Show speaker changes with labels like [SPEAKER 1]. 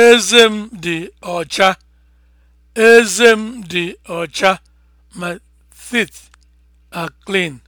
[SPEAKER 1] Eze m dị ọcha. Eze m dị ọcha. My teeth are clean.